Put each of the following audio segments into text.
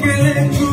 que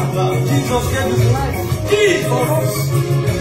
Jesus gave his life. Jesus.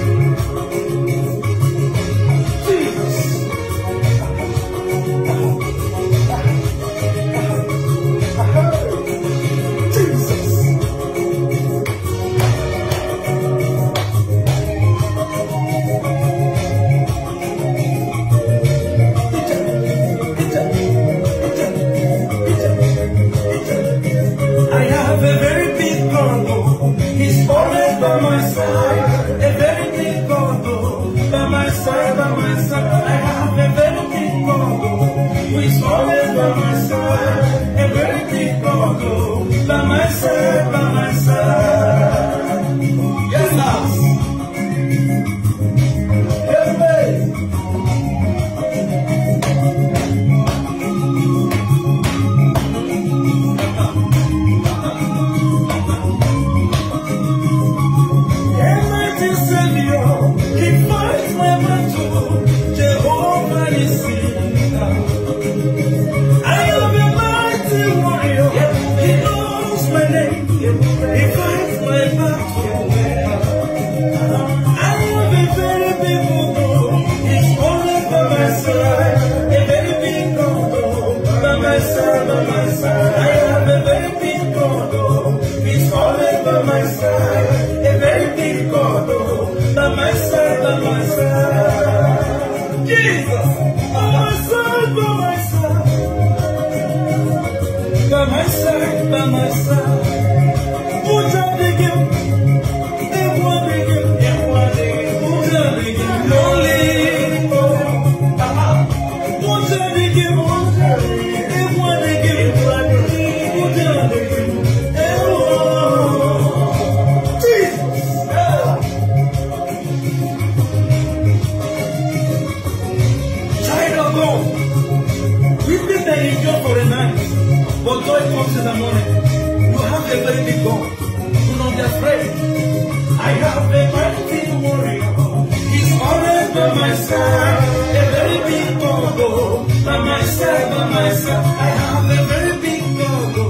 by myself, by myself, I have a very big go-go.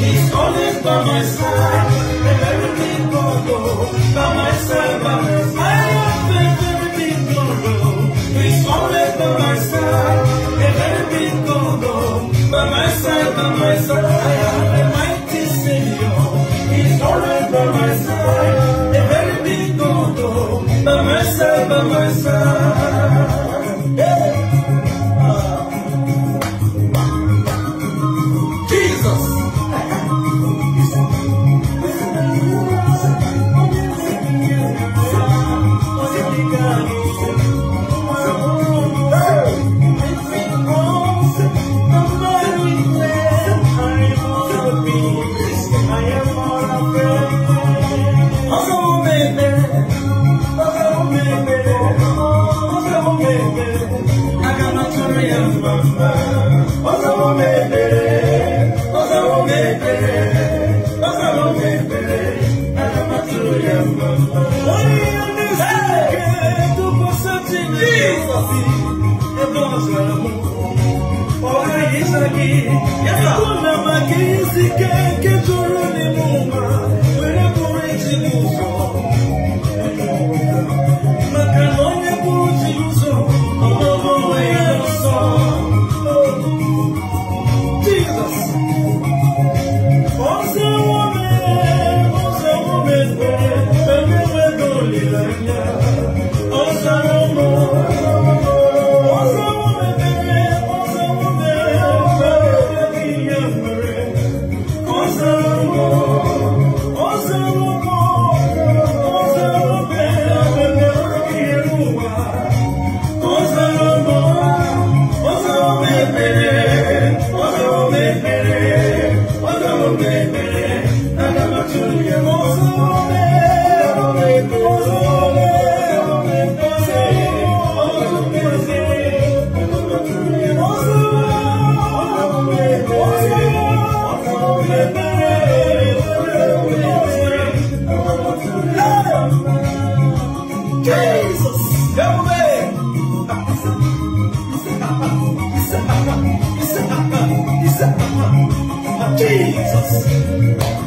He's always by my side, a very big go-go. By myself, by my I have a very big go-go. He's always by my side, a very big go-go. By myself, by myself. Yes, sir. me don't no me mere. Jesus.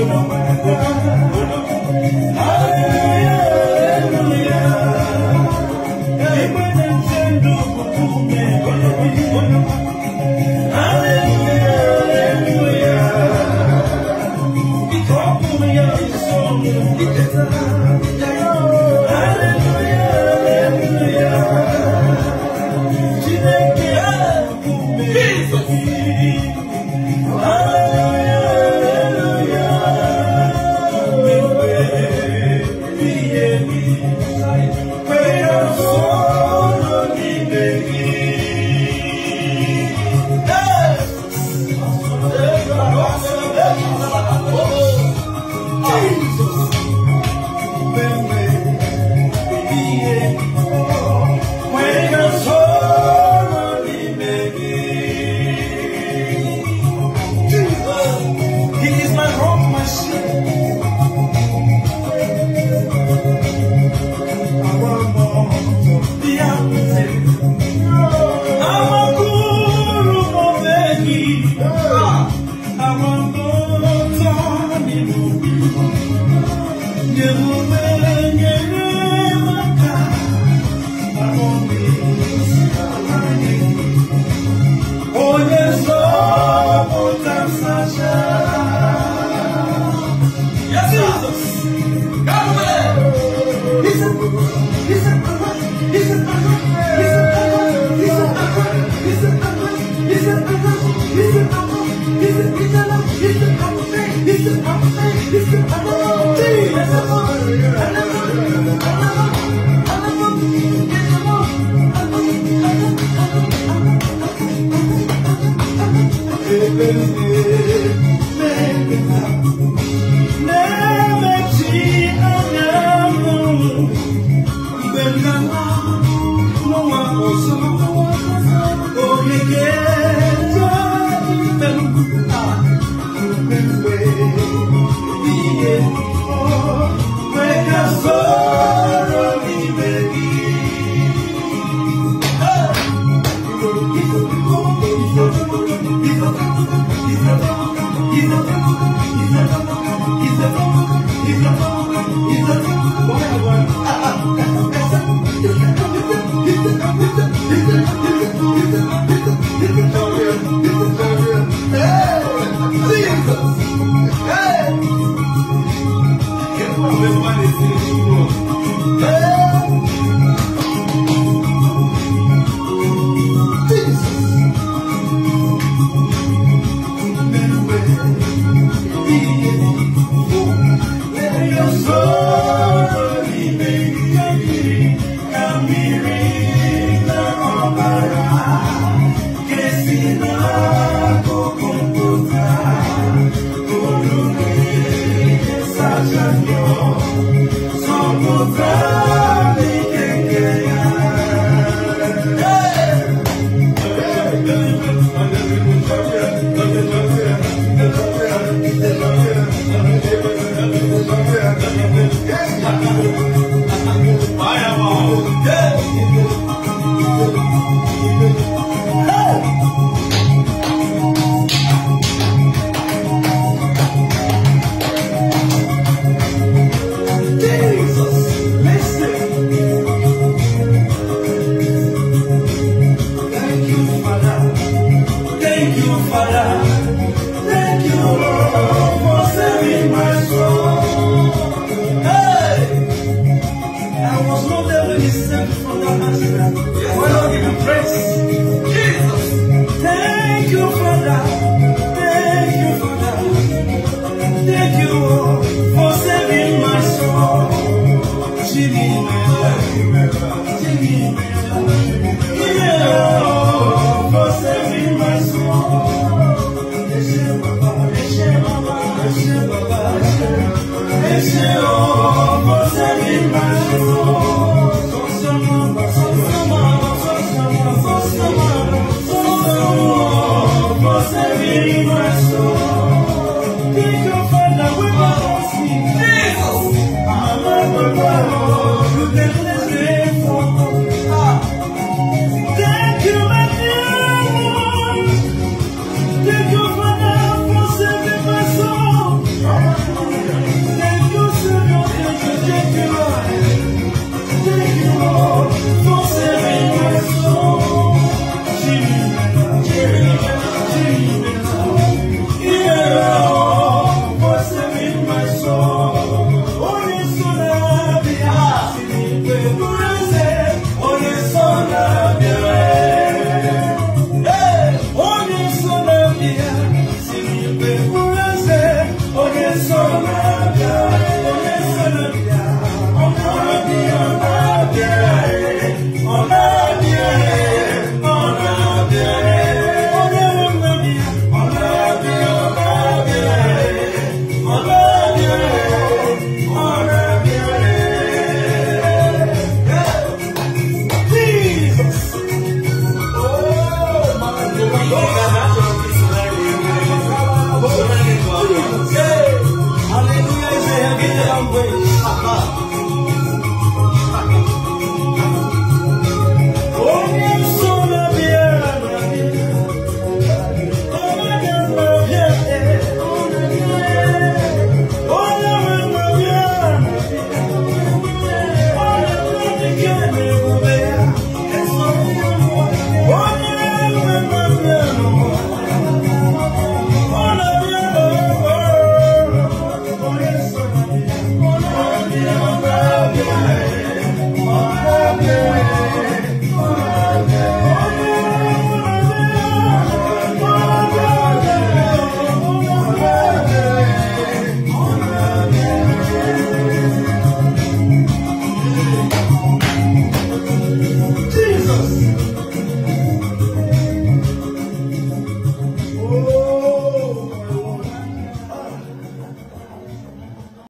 you know, Make it up. Never cheat. Hey! Hey! Hey! Amen. language.